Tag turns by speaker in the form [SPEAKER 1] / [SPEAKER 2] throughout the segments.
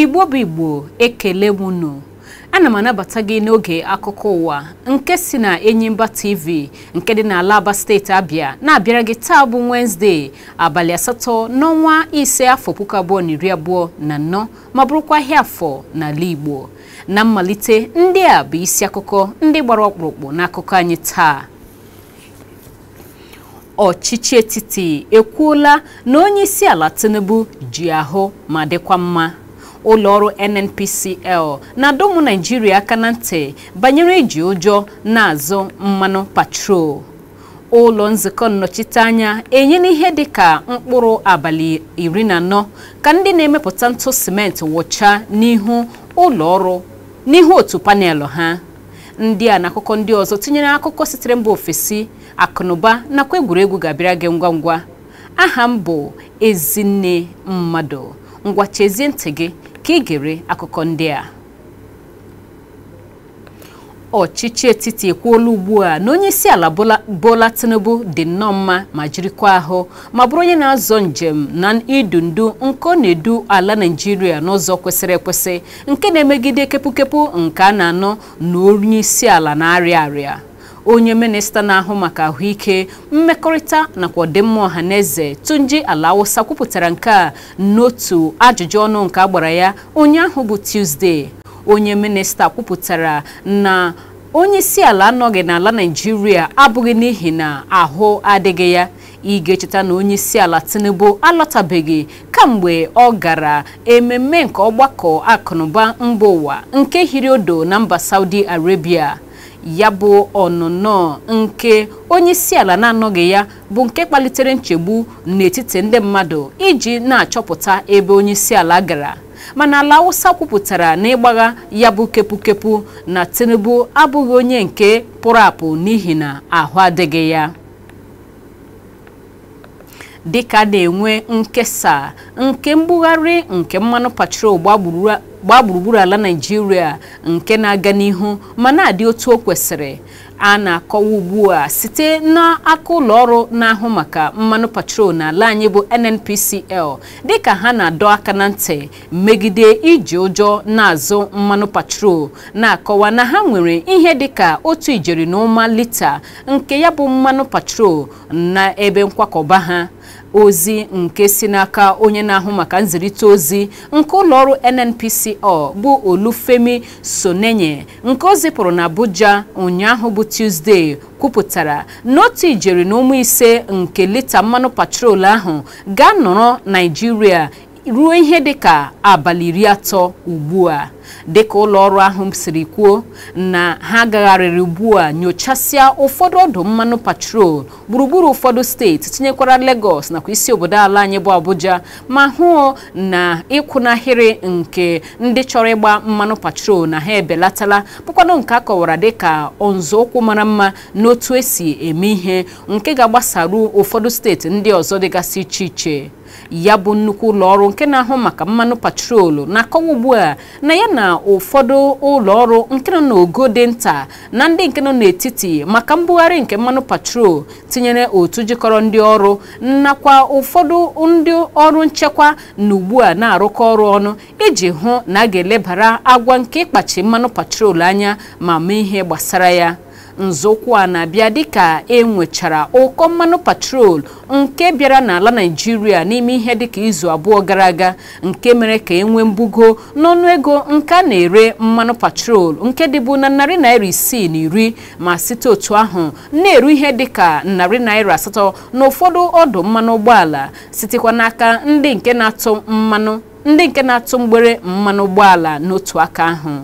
[SPEAKER 1] Igbo bụ Igbo ekele m unu ana m anabata gị n'oge akụkọ ụwa nke si na Enyimba TV nke dị n'ala Aba steeti Abịa na-abịara gị taa bụ wensde abalị asatọ n'ọnwa ise afọ puku abụọ na iri abụọ na anọ ma bụrụkwa ahịa afọ n'ala Igbo na mmalite ndị a bụ isi akụkọ ndị gbara ọkpụrụkpụ n'akụkọ anyị taa ọchịchị etiti ekwuola na onye isi ala Tinubu ji ahụ ma dịkwa mma ụlọọrụ NNPCL na adọmụ naijiria aka na ntị banyere iji ụjọ na-azụ mmanụ patrol ụlọ nzukọ nnọchiteanya enyela ihe dị ka mkpụrụ abalị iri na anọ ka ndị na-emepụta ntụ simenti wụchaa n'ihu ụlọọrụ n'ihu otu panelụ ha ndị a na akụkọ ndị ọzọ tinyere akụkọ sitere mba ofesi akụnụba nakwa egwuregwu ga-abịara gị ngwa ngwa aha m bụ Ezinne Mmadụ ngwa chezie ntị gị ka gere akụkọ ndị a ọchịchị etiti ekwuola ugbu a na onye isi ala Bola Tinubu dị nnọọ mma ma jirikwa ahụ ma bụrụ onye na-azọ njem na idu ndu nke ọ na-edu ala naijiria n'ụzọ kwesịrị ekwesị nke na-emegide kepụkepụ nke a na-anọ na onye isi ala na-arịa arịa onye minista na-ahụ maka ahụike mmekọrịta nakwa ọdịmma ọhaneze na Tunji Ala Awụsa kwupụtara nke a n'otu ajụjụ ọnụ nke agbara ya onye ahụ bụ tuzdee onye minista kwupụtara na onye isi ala anọghị n'ala Naịjirịa abụghị n'ihi na ahụ adịghị ya ị ga-echeta na onye isi ala Tinubu alọtabeghị kamgbe ọ gara ememe nke ọgbakọ akụnụba mba ụwa nke hiri odo na mba Saudi Arabia ya bụ ọnụnọ nke onyeisiala na-anọghị ya bụ nke kpalitere nchegbu n'etiti ndị mmadụ iji na-achọpụta ebe onyeisiala gara mana ala Awụsa kwupụtara na ịgbagha ya bụ kepukepu na Tinubu abụghị onye nke pụrụ apụ n'ihi na ahụ adịghị ya dịka na-enwe nkesa nke mbugharị nke mmanụ patrol gbagburu gbaa gburugburu ala naijiria nke na-aga n'ihu ma na-adị otu o kwesịrị a na-akọwa ugbu a site n'aka ụlọ ọrụ na-ahụ maka mmanụ patrol n'ala anyị bụ NNPCL dịka ha na-adọ aka na ntị megide iji ụjọ na-azụ mmanụ patrol na-akọwa na ha nwere ihe dịka otu ijeri na ụma lita nke ya bụ mmanụ patrol na ebe nkwakọba ha ozi nke si n'aka onye na-ahụ maka nzirịta ozi nke ụlọọrụ NNPCL bụ Olufemi Sonenye nke o na abuja ụnyaahụ bụ Tuesday kwupụtara na ijeri na ụmụ ise nke lita mmanụ patrol ahụ ga-anọrọ Naịjirịa ruo ihe dịka abalị iri atọ ugbu a dịka ụlọ ọrụ ahụ siri kwuo na ha gagharịrị ugbu a nyochasịa ụfọdụ ọdụ mmanụ patrol gburugburu ụfọdụ steeti tinyekwara Lagos nakwa isi obodo ala anyị bụ Abuja ma hụ na ịkwụnahịrị nke ndị chọrọ ịgba mmanụ patrol na ha ebelatala bụkwanụ nke a kọwara dịka nzọụkwụ mara mma n'otu esi eme ihe nke ga-agbasaru ụfọdụ steeti ndị ọzọ dịgasị iche iche ya bụ nnukwu ụlọ ọrụ nke na-ahụ maka mmanụ patrol na-akọwa ugbu a na ya na na ụfọdụ ụlọ ọrụ nke nọ n'ogo dị nta na ndị nke nọ n'etiti maka mbugharị nke mmanụ patrol tinyere otu jikọrọ ndị ọrụ nakwa ụfọdụ ndị ọrụ nchekwa na ugbu a na-arụkọ ọrụ ọnụ iji hụ na a ga-elebara agwa nke ịkpachi mmanụ patrol anya ma mee ihe gbasara ya nzọụkwụ a na-abịa dịka e nwechara ụkọ mmanụ patrol nke bịara n'ala naijiria n'ime ihe dịka izu abụọ gara aga nke mere ka e nwee mbugo ego nke a na-ere mmanụ patrol nke dịbụ na narị naira isii na iri ma site otu ahụ na-eru ihe dịka narị naira asatọ na ụfọdụ ọdụ mmanụ ụgbọala sitekwa n'aka ndị nke na-atụ mmanụ ndị nke na-atụ mgbere mmanụ ụgbọala n'otu aka ahụ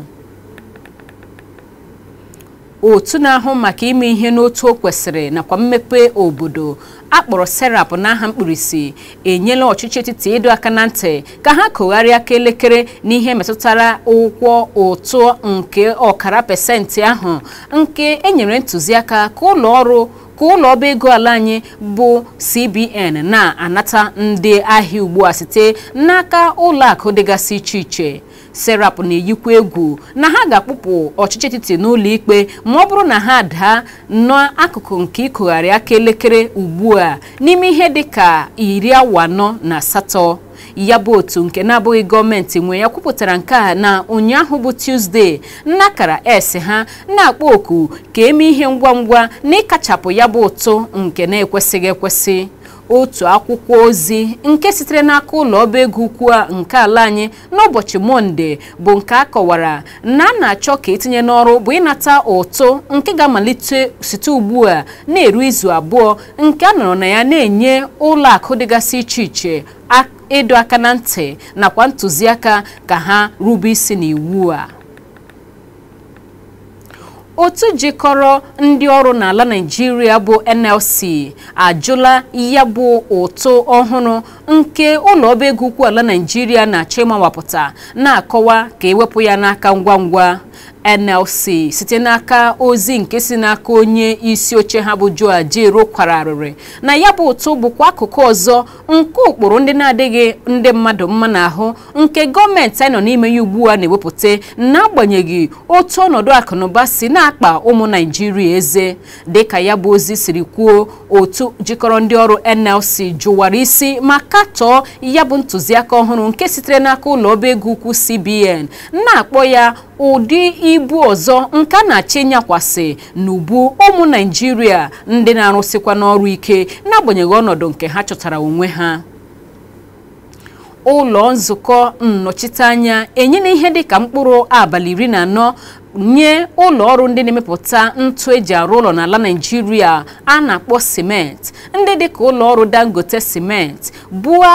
[SPEAKER 1] otu na-ahụ maka ime ihe n'otu o kwesịrị nakwa mmepe obodo akpọrọ serap n'aha mkpirisi enyela ọchịchị etiti ịdọ aka na ntị ka ha kụgharịa aka elekere n'ihe metụtara ụgwọ ụtụ nke ọkara pesenti ahụ nke enyere ntụziaka ka ụlọ ọrụ ka ụlọ ọba ego ala anyị bụ CBN na-anata ndị ahịa ugbu a site n'aka ụlọ akụ dịgasị iche iche serap na-eyikwa egwu na ha ga-akpụpụ ọchịchị etiti n'ụlọ ikpe ma ọ bụrụ na ha daa akụkụ nke ịkụgharị aka elekere ugbu a n'ime ihe dị ka iri awa anọ na asatọ ya bụ otu nke na-abụghị gọọmenti nwe ya kwupụtara nke a na ụnyaahụ bụ Tuzdee nnakara s ha na-akpọ oku ka eme ihe ngwa ngwa na ịkachapụ ya bụ ụtụ nke na-ekwesịghị ekwesị otu akwụkwọ ozi nke sitere n'aka ụlọ ọba ego ukwu nke ala anyị n'ụbọchị mọnde bụ nke a kọwara na a na-achọ ka etinye n'ọrụ bụ ịnata ụtụ nke ga-amalite site ugbu a na-eru izu abụọ nke a nọrọ na ya na-enye ụlọ akụ dịgasị iche iche ịdọ aka na ntị nakwa ntụziaka ka ha rube isi n'iwu a otu jikọrọ ndị ọrụ n'ala nigeria bụ NLC ajụla ya bụ ụtụ ọhụrụ nke ụlọ ọba ego ukwu ala naijiria na chimawapụta na-akọwa ka ewepụ ya n'aka ngwa ngwa NLC site n'aka ozi nke si n'aka onye isi oche ha bụ Joe Ajaero kwara arịrị na ya bụ ụtụ bụkwa akụkụ ọzọ nke ụkpụrụ ndị na-adịghị ndị mmadụ mma n'ahụ nke gọọmenti anyị nọ n'ime ya ugbu a na-ewepụta n'agbanyeghị otu ọnọdụ akụnụba si na-akpa ụmụ naijiria eze dịka ya bụ ozi siri kwuo otu jikọrọ ndị ọrụ NLC jụwara isi maka chọọ ya bụ ntụziaka ọhụrụ nke sitere n'aka ụlọ ọba ego ukwu CBN na-akpọ ya ụdị ibu ọzọ nke a na-achị nyakwasị n'ubu ụmụ Naịjirịa ndị na-arụsịkwa n'ọrụ ike n'agbanyeghị ọnọdụ nke ha chọtara onwe ha ụlọ nzukọ nnọchiteanya enyela ihe dịka mkpụrụ abalị iri na anọ nye ụlọ ọrụ ndị na-emepụta ntụ eji arụ ụlọ n'ala Naịjirịa a na-akpọ simenti ndị dịka ụlọ ọrụ Dangote simenti bua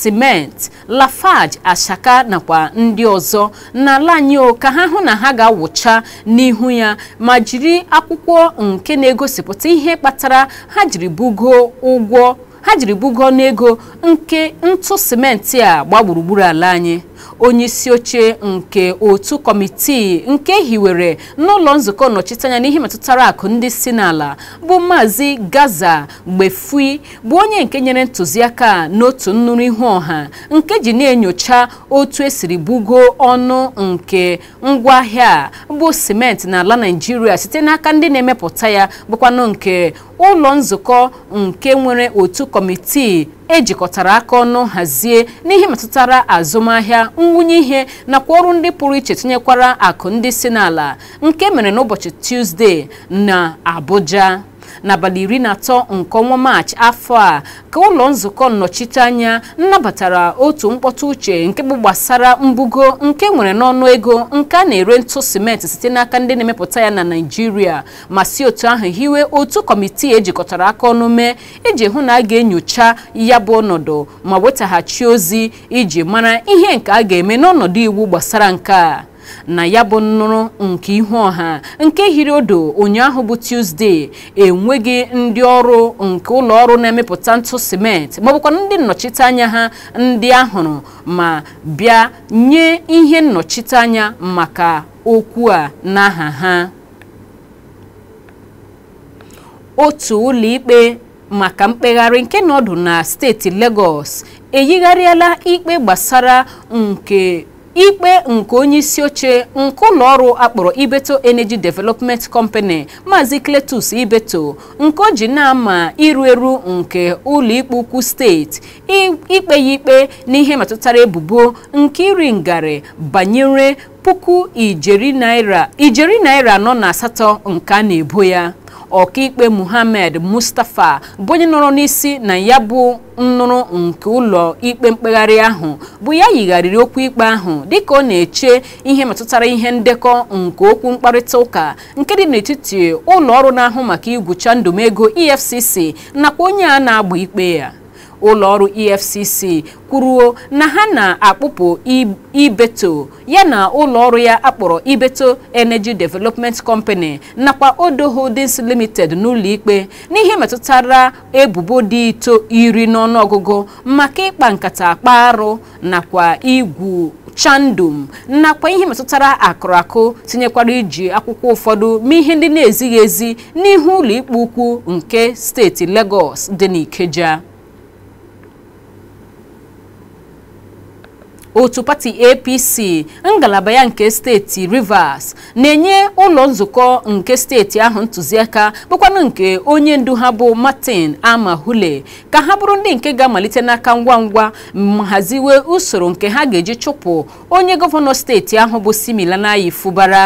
[SPEAKER 1] simenti Lafarge Ashaka nakwa ndị ọzọ n'ala anyị ka ha hụ na ha ga-awụcha n'ihu ya ma jiri akwụkwọ nke na-egosipụta ihe kpatara ha jiri bugo ụgwọ ha jiri bugo n'ego nke ntụ simenti a gba ala anyị onye isi oche nke otu kọmitii nke hiwere n'ụlọ nzukọ nnọchiteanya n'ihe metụtara akụ ndị si n'ala bụ maazị gaza gbefui bụ onye nke nyere ntụziaka n'otu nnụrụ ihu ọha nke ji na-enyocha otu esiri bugo ọnụ nke ngwaahịa bụ simenti n'ala naijiria site n'aka ndị na-emepụta ya bụkwanụ nke ụlọ nzukọ nke nwere otu kọmitii ejikọtara aka ọnụ hazie n'ihe metụtara azụmahịa nwunye ihe nakwa ọrụ ndị pụrụ iche tinyekwara akụ ndị si n'ala nke mere n'ụbọchị Tuzdee na Abuja n'abalị iri na atọ nke ọnwa maachị afọ a ka ụlọ nzukọ nnọchiteanya nnabatara otu mkpọtụ uche nke bụ gbasara mbugo nke nwere n'ọnụ ego nke a na-ere ntụ simenti site n'aka ndị na-emepụta ya na naijiria ma si otu ahụ hiwe otu kọmitii ejikọtara aka ọnụ mee iji hụ na a ga-enyocha ya bụ ọnọdụ ma wetaghachi ozi iji mara ihe nke a ga-eme n'ọnọdụ iwu gbasara nke a na ya bụ nnụrụ nke ihu ọha nke hiri odo ụnyaahụ bụ tuzdee enweghị ndị ọrụ nke ụlọ ọrụ na-emepụta ntụ simenti maọbụkwa ndị nnọchiteanya ha ndị ahụrụ ma bịa nye ihe nnọchiteanya maka okwu a n'aha ha otu ụlọikpe maka mkpegharị nke nọdụ na steeti Lagos eyigharịala ikpe gbasara nke ikpe nke onye isi oche nke ụlọ ọrụ akpọrọ ibeto energy development company maazị cletus ibeto nke o ji na-ama iru eru nke ikpe ukwu steeti ikpe ya ikpe n'ihe metụtara ebubo nke iri ngarị banyere puku ijeri naira ijeri naira anọ na asatọ nke a na-ebo ya ọkaikpe muhammad mustapha bụ onye nọrọ n'isi na ya bụ nnụrụ nke ụlọ ikpe mkpegharị ahụ bụ ya yigharịrị okwu ikpe ahụ dịka ọ na-eche ihe metụtara ihe ndekọ nke okwu mkparịta ụka nke dị n'etiti ụlọ ọrụ na-ahụ maka igwucha ndụmego efcc nakwa onye a na-agba ikpe ya ụlọọrụ efcc kwuruo na ha na-akpụpụ ibeto yana ụlọọrụ ya akpọrọ ibeto energy development company nakwa odo holdings limited n'ụlọikpe n'ihe metụtara ebubo dị ito iri n'ọnụọgụgụ maka ịkpa nkata akpa arụ nakwa igwu chandum nakwa ihe metụtara akụrụakụ tinyekwara iji akwụkwọ ụfọdụ ma ihe ndị na-ezighị ezi n'ihu ụlọikpe ukwu nke steeti Lagos dị n'Ikeja otu pati apc ngalaba ya nke steeti rivers na-enye ụlọ nzukọ nke steeti ahụ ntụziaka bụkwanụ nke onye ndu ha bụ martin amahule ka ha bụrụ ndị nke ga-amalite n'aka ngwa ngwa ma haziwe usoro nke ha ga-eji chụpụ onye gọvanọ steeti ahụ bụ similanayi fubara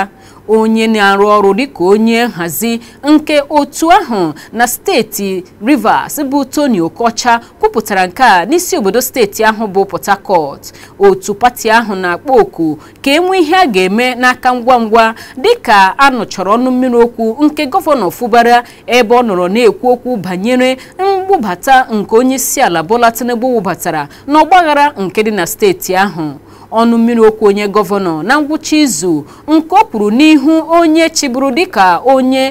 [SPEAKER 1] onye na-arụ ọrụ dịka onye nhazi nke otu ahụ na steeti Rivers bụ Tony Okocha kwupụtara nke a n'isi obodo steeti ahụ bụ Port Harcourt otu pati ahụ na-akpọ oku ka e nwee ihe a ga-eme n'aka ngwa ngwa dịka a nụchọrọ ọnụ mmiri okwu nke gọvanọ Fubara ebe ọ nọrọ na-ekwu okwu banyere mgbubata nke onye isi ala Bola Tinubu wụbatara n'ọgbaghara nke dị na steeti ahụ ọnụ mmiri okwu onye gọvanọ na ngwụcha izu nke ọ kwuru n'ihu onye chịbụrụ dịka onye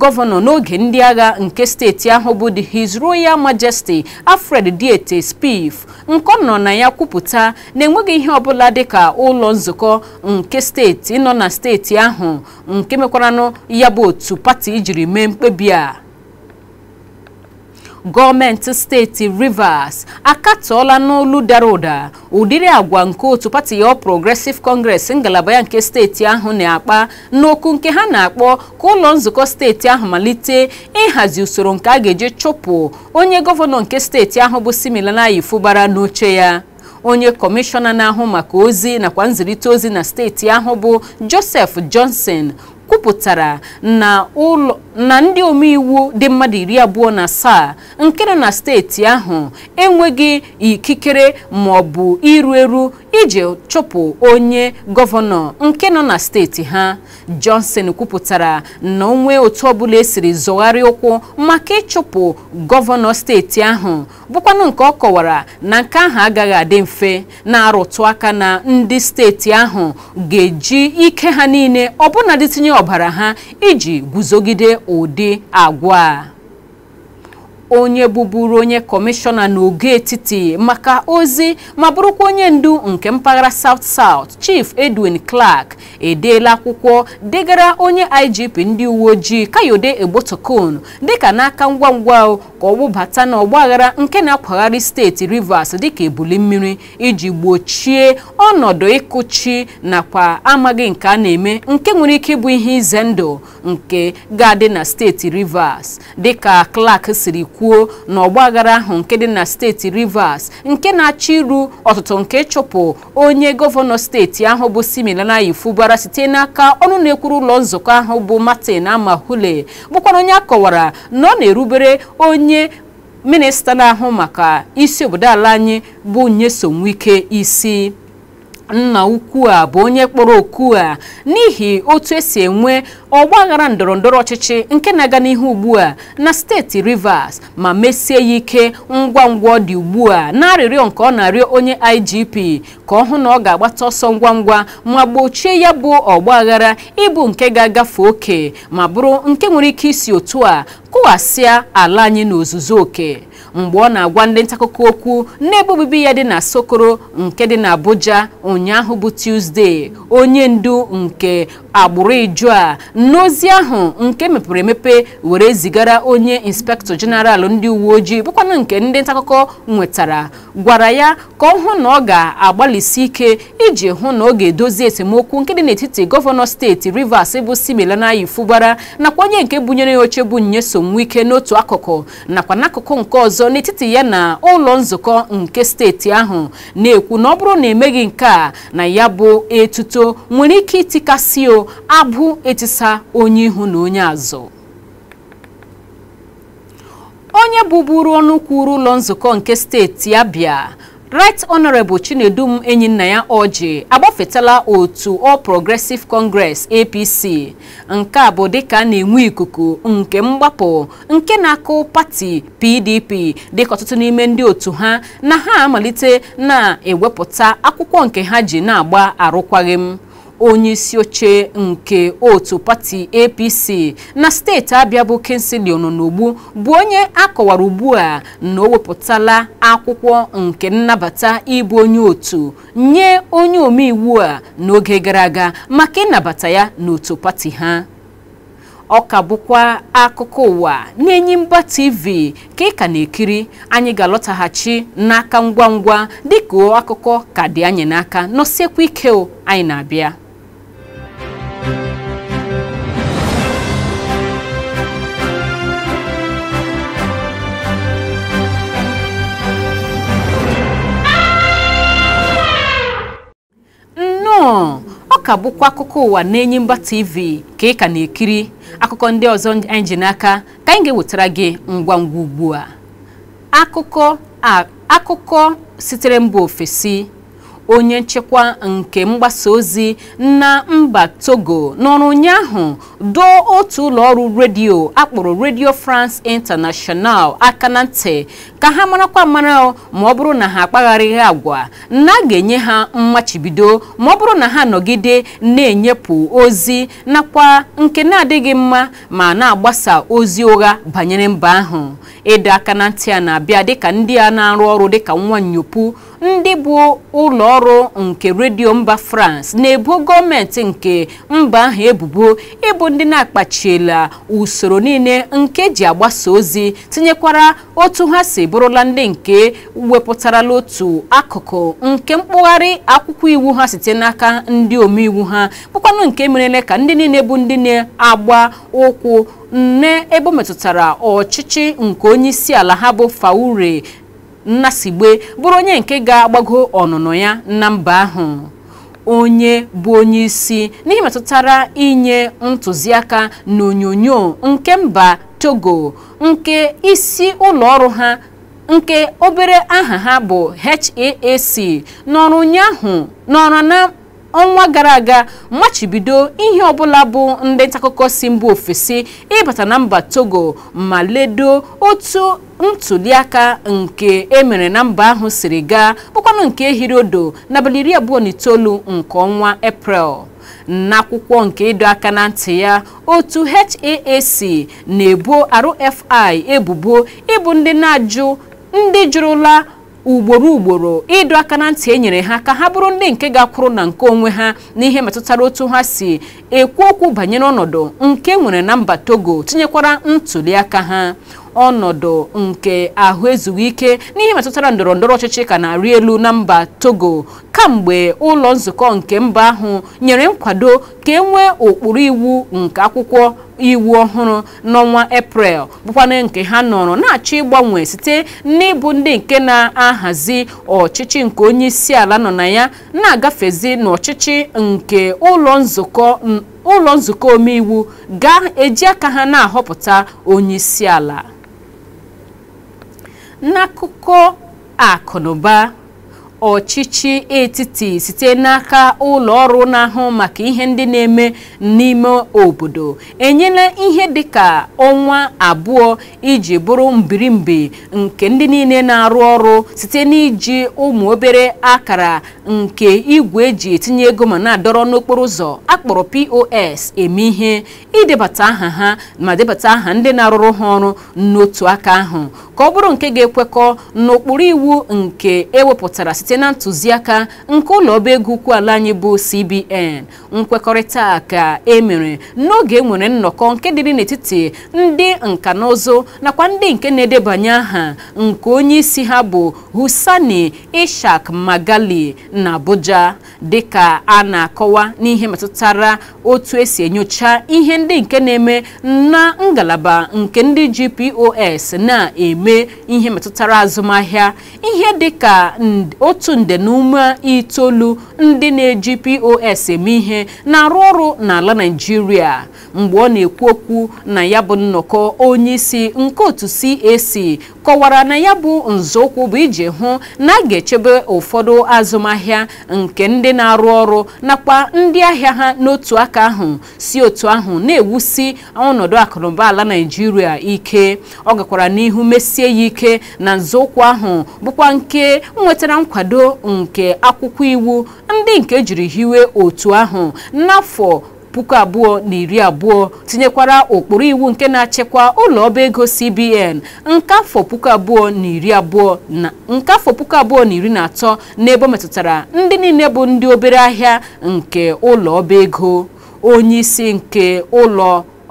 [SPEAKER 1] gọvanọ n'oge ndị agha nke steeti ahụ bụ the His Royal Majesty Alfred Diete spif nke nọ na ya kwupụta na enweghị ihe ọbụla dịka ụlọ nzukọ nke steeti nọ na steeti ahụ nke mekwaranụ ya bụ otu pati jiri mee mkpebi a gọọmenti steeti Rivers akatọọla n'olu dara ụda ụdịrị agwa nke otu pati ya Progressive Congress ngalaba ya nke steeti ahụ na-akpa n'okwu nke ha na-akpọ ka ụlọ nzukọ steeti ahụ malite ịhazi usoro nke a ga-eji chụpụ onye gọvanọ nke steeti ahụ bụ Siminalayi Fubara n'oche ya onye kọmishọna na-ahụ maka ozi nakwa nzirịta ozi na steeti ahụ bụ Joseph Johnson kwupụtara na ndị omeiwu dị mmadụ iri abụọ na asaa nke nọ na steeti ahụ enweghị ikikere maọbụ iru eru iji chụpụ onye gọvanọ nke nọ na steeti ha Johnson kwupụtara na onwe otu ọbụla esiri zọgharị ụkwụ maka ịchụpụ gọvanọ steeti ahụ bụkwanụ nke ọ kọwara na nke ahụ agaghị adị mfe na-arụtụ aka na ndị steeti ahụ ga-eji ike ha niile ọbụna dịtinye ọbara ha iji guzogide ụdị agwa a onye bụburu onye kọmishọna n'oge etiti maka ozi ma bụrụkwa onye ndu nke mpaghara South South Chief Edwin Clark edeela akwụkwọ degara onye IGP ndị uwe ojii Kayode dị dịka n'aka ngwa ngwa ka ọ n'ọgbaghara nke na-akwagharị steeti Rivers dịka ebuli mmiri iji gbochie ọnọdụ ịkụchi nakwa amaghị nke a na-eme nke nwere ike ịbụ ihe ize ndụ nke ga-adị na steeti Rivers dịka Clark siri kwuo kwuo na ọgbaghara ahụ nke dị na steeti Rivers nke na achị iru ọtụtụ nke ịchụpụ onye gọvanọ steeti ahụ bụ Siminalayi Fubara site n'aka ọnụ na-ekwuru ụlọ nzukọ ahụ bụ Martin amahule bụkwara onye akọwara na ọ na-erubere onye minista na-ahụ maka isi obodo ala anyị bụ nyesomike isi nna ukwu a bụ onye kpọrọ oku a n'ihi otu esi enwe ọgbaghara ndọrọ ndọrọ ọchịchị nke na-aga n'ihu ugbu a na steeti Rivers ma mesie ya ike ngwa ngwa ọ dị ugbu a na-arịrịọ nke ọ na-arịọ onye IGP ka ọ hụ na ọ ga-agbata ọsọ ngwa ngwa ma gbochie ya bụ ọgbaghara ịbụ nke ga-agafe oke ma bụrụ nke nwere ike isi otu a kụghasịa ala anyị n'ozuzu oke mgbe ọ na-agwa ndị ntakụkọ okwu n'ebe obibi ya dị na Sokoro nke dị na Abuja ụnyaahụ bụ Tuesday onye ndu nke agbụrụ iju a n'ozi ahụ nke mepere emepe were zigara onye inspektọ jeneral ndị uwe ojii bụkwanụ nke ndị ntaakụkọ nwetara gwara ya ka ọ hụ na ọ ga-agbalịsi ike iji hụ na ọ ga-edozi esemokwu nke dị n'etiti gọvanọ steeti Rivers bụ Simelanayi nakwa onye nke bunyere ya oche bụ Nyesom Wike n'otu akụkụ nakwa n'akụkụ nke ọzọ n'etiti ya na ụlọ nzukọ nke steeti ahụ na-ekwu na ọ bụrụ na emeghị nke a na ya bụ etuto nwere ike itikasị o abụ etisa onye ihu na onye azụ onye bụburu ọnụ kwuru ụlọ nzukọ nke steeti Abia Right Honorable Chinedum ya oji agbafetala otu All Progressive Congress APC nke a bụ dịka a na-enwe ikuku nke mgbapụ nke na-akụ pati PDP dịka ọtụtụ n'ime ndị otu ha na ha amalite na-ewepụta akwụkwọ nke ha ji na-agba arụkwaghịm onye isi oche nke otu pati apc na steeti abịa bụ kingslon n'ogbu bụ onye akọwara ugbu a na o wepụtala akwụkwọ nke nnabata ịbụ onye otu nye onye omeiwu a n'oge gara aga maka ịnabata ya n'otu pati ha ọ ka bụkwa akụkọ ụwa n'Enyimba TV ka ị ka na-ekiri anyị ga-alọtaghachi n'aka ngwa ngwa dịka akụkọ ka dị anyị n'aka nọsiekwa ike anyị na-abịa ka bụkwa akụkọ ụwa na mba TV ka ị ka na-ekiri akụkọ ndị ọzọ anyị ji ka anyị ga-ewetara gị ngwa ngwa ugbu a akụkọ sitere mba ofesi onye nchekwa nke mgbasa ozi na mba Togo n'ọrụ ụnyaahụ doo otu ụlọ ọrụ redio akpọrọ redio France International aka na ntị ka ha marakwa mara ma ọ bụrụ na ha akpagharịghị agwa na a ga-enye ha mmachibido ma ọ bụrụ na ha nọgide na-enyepụ ozi nakwa nke na-adịghị mma ma na-agbasa ozi ụgha banyere mba ahụ ịdọ aka na ntị a na-abịa dịka ndị a na-arụ ọrụ dịka nwa nyopu ndị bụ ụlọ ọrụ nke redio mba France na ebu gọọmenti nke mba ahụ ebubo ịbụ ndị na-akpachiela usoro niile nke ji agbasa ozi tinyekwara otu ha si bụrụla ndị nke wepụtarala otu akụkụ nke mkpụgharị akwụkwọ iwu ha site n'aka ndị omeiwu ha bụkwanụ nke merele ka ndị niile bụ ndị na-agba ụkwụ nne ebe o metụtara ọchịchị nke onye ala ha bụ Faure Nnasigbe bụrụ onye nke ga-agbago ọnụnọ ya na mba ahụ onye bụ onye isi n'ihe metụtara inye ntụziaka na onyonyo nke mba Togo nke isi ụlọ ọrụ ha nke obere aha ha bụ HAAC n'ọrụ ụnyaahụ n'ọrụ na ọnwa gara aga machibido ihe ọbụla bụ ndị ntaakụkọ si mba ofesi ịbata na mba togo ma ledo otu ntuliaka nke emere na mba ahụ siri gaa bụkwanụ nke ehiri odo n'abalị iri abụọ na itoolu nke ọnwa eprel n'akwụkwọ nke ịdọ aka na ntị ya otu HAAC na-ebo RFI ebubo ịbụ ndị na-ajụ ndị jụrụla ugboro ugboro ịdọ aka na ntị enyere ha ka ha bụrụ ndị nke ga-akwụrụ na nke onwe ha n'ihe metụtara otu ha si ekwu okwu banyere ọnọdụ nke e nwere na mba Togo tinyekwara ntụliaka ha ọnọdụ nke ahụ ezughị ike n'ihe metụtara ndọrọ ndọrọ ọchịchị ka na-arị elu na mba togo kamgbe ụlọ nzukọ nke mba ahụ nyere nkwado ka e nwee ụkpụrụ iwu nke akwụkwọ iwu ọhụrụ n'ọnwa eprel bụkwana nke ha nọrọ na-achọ ịgbanwe site n'ịbụ ndị nke na-ahazi ọchịchị nke onye isi ala nọ na ya na-agafezi n'ọchịchị nke ụlọ nzukọ ụlọ nzukọ omeiwu ga-eji aka ha na-ahọpụta onye isi ala n'akụkọ akụ na ọchịchị etiti site n'aka ụlọ ọrụ na-ahụ maka ihe ndị na-eme n'ime obodo enyela ihe dịka ọnwa abụọ iji bụrụ mbirimbi nke ndị niile na-arụ ọrụ site n'iji ụmụ obere akara nke igwe eji etinye ego ma na-adọrọ n'okporo ụzọ akpọrọ POS eme ihe idebata aha ha ma debata aha ndị na-arụrụ ha ọrụ n'otu aka ahụ ka ọ bụrụ nke ga-ekwekọ n'okpuru iwu nke ewepụtara site site na ntụziaka nke ụlọ ọba ego ala anyị bụ CBN nkwekọrịta ka e mere n'oge enwere nnọkọ nke dịrị n'etiti ndị nka na ụzụ nakwa ndị nke na-edebanye aha nke onye isi ha bụ Husani Ishak Magali na Abuja dịka a na-akọwa n'ihe metụtara otu esi enyocha ihe ndị nke na-eme na ngalaba nke ndị GPOS na-eme ihe metụtara azụmahịa ihe otu otu nde na ume itoolu ndị na-eji pos eme ihe na-arụ ọrụ n'ala naijiria mgbe ọ na-ekwu okwu na ya bụ nnọkọ onyeisi nke otu cac kọwara na ya bụ nzọụkwụ bụ iji hụ na a ga-echebe ụfọdụ azụmahịa nke ndị na-arụ ọrụ nakwa ndị ahịa ha n'otu aka ahụ si otu ahụ na-ewusi ọnọdụ akụnụba ala naijiria ike ọ gakwara n'ihu mesie ya ike na nzọụkwụ ahụ bụkwa nke nwetara nkwado nkwado nke akwụkwọ iwu ndị nke jiri hiwe otu ahụ n'afọ puku abụọ na iri abụọ tinyekwara ụkpụrụ iwu nke na-achịkwa ụlọ ọba ego CBN nke afọ puku abụọ na iri abụọ na atọ na iri na metụtara ndị niile bụ ndị obere ahịa nke ụlọ ọba ego onye isi nke ụlọ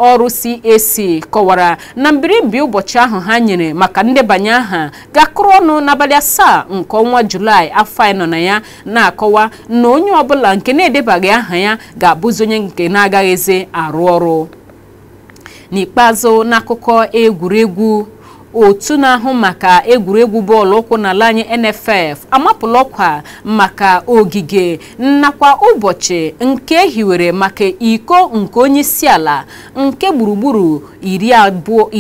[SPEAKER 1] ọrụ CAC kọwara na mbirịmbi ụbọchị ahụ ha nyere maka ndebanye aha gakụrụ ọnụ n'abalị asaa nke ọnwa Julaị afọ anyị na ya na-akọwa na onye ọbụla nke na-edebaghị aha ya ga-abụzi onye nke na-agaghịzi arụ ọrụ n'ikpeazụ n'akụkọ egwuregwu otu na-ahụ maka egwuregwu bọọlụ ụkwụ n'ala anyị NFF amapụla ọkwa maka ogige nakwa ụbọchị nke e hiwere maka iko nke onye isi ala nke gburugburu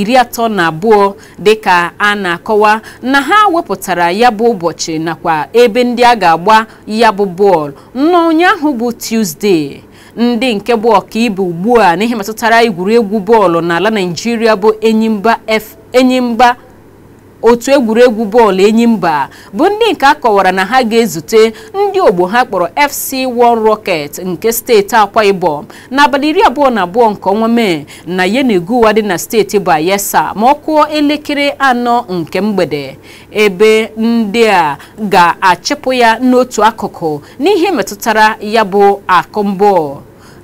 [SPEAKER 1] iri atọ na abụọ dịka a na-akọwa na ha wepụtara ya bụ ụbọchị nakwa ebe ndị a ga-agba ya bụ bọọlụ n'ụnyaahụ bụ tuzdee. ndị nke bụ ọkaibe ugbu a n'ihe metụtara egwuregwu bọọlụ n'ala naijiria bụ Enyimba otu egwuregwu bọọlụ enyi enyimba bụ ndị nke a kọwara na ha ga-ezute ndị ogbo ha kpọrọ FC One Rocket nke steeti Akwa Ibom n'abalị iri abụọ na abụọ nke ọnwa Mee na ụwa dị na steeti Bayelsa ma ọ kụọ elekere anọ nke mgbede ebe ndị a ga-achịpụ ya n'otu akụkụ n'ihe metụtara ya bụ akụ mbụ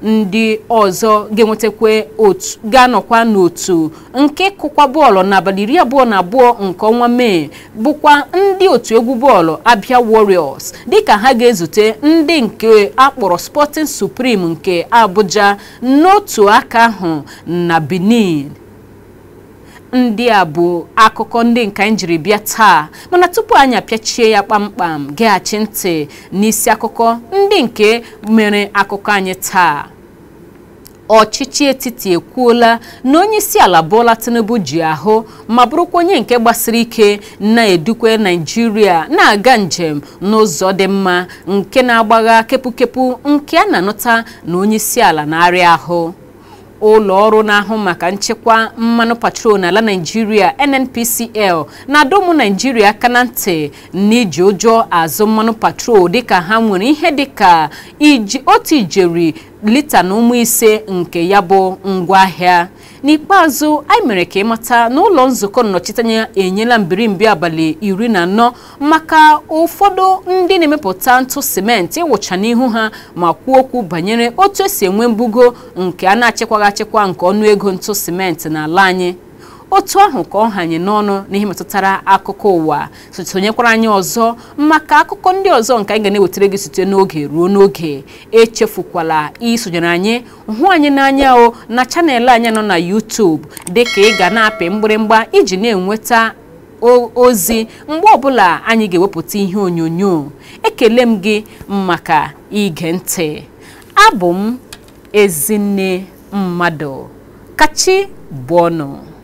[SPEAKER 1] ndị ọzọ ga-enwetakwa otu ga-anọkwa n'otu nke kụkwa bọọlụ n'abalị iri abụọ na abụọ nke ọnwa mee bụkwa ndị otu egwu bọọlụ abịa Warriors dịka ha ga-ezute ndị nke akpọrọ Sporting Supreme nke Abuja n'otu aka ahụ na Benin ndị a bụ akụkọ ndị nke anyị jiri bịa taa mana tupu anyị apịachie ya kpamkpam geghachi ntị n'isi akụkọ ndị nke mere akụkọ anyị taa ọchịchị etiti ekwuola na onye isi ala Bola Tinubu ji ahụ ma bụrụkwa onye nke gbasiri ike na-edukwe naijiria na-aga njem n'ụzọ dị mma nke na-agbagha kepụkepụ nke a na-anụta na onye isi ala na-arịa ahụ ụlọ ọrụ na-ahụ maka nchekwa mmanụ patrol n'ala Naịjirịa NNPCL na adọmụ naijiria Naịjirịa aka na ntị n'iji ụjọ azụ mmanụ patrol dịka ha nwere ihe dịka otu ijeri lita na ụmụ ise nke ya bụ ngwaahịa n'ikpeazụ anyị mere ka ịmata na ụlọ nzukọ nnọchiteanya enyela mbirimbi abalị iri na anọ maka ụfọdụ ndị na-emepụta ntụ simenti ịwụcha n'ihu ha ma kwuo okwu banyere otu esi enwe mbugo nke a na-achịkwaghị achịkwa nke ọnụego ntụ simenti na-ala anyị otu ahụ ka ọ hanye n'ọnụ n'ihe metụtara akụkọ ụwa sonyekwara anyị ọzọ maka akụkọ ndị ọzọ nke anyị ga na-ewetara gị site n'oge ruo n'oge echefukwala isonyere anyị hụ anyị n'anya o na chanel anyị nọ na YouTube dịka ị ga na-apị mgbịrịmgba iji na-enweta ozi mgbe ọbụla anyị ga-ewepụta ihe onyonyo ekele m gị maka ige ntị abụ m ezinne mmadụ kachi bụ ọnụ